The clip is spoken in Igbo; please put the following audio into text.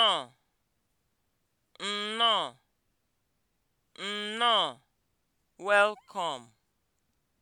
nnọọ nnọọ nnọọ welcome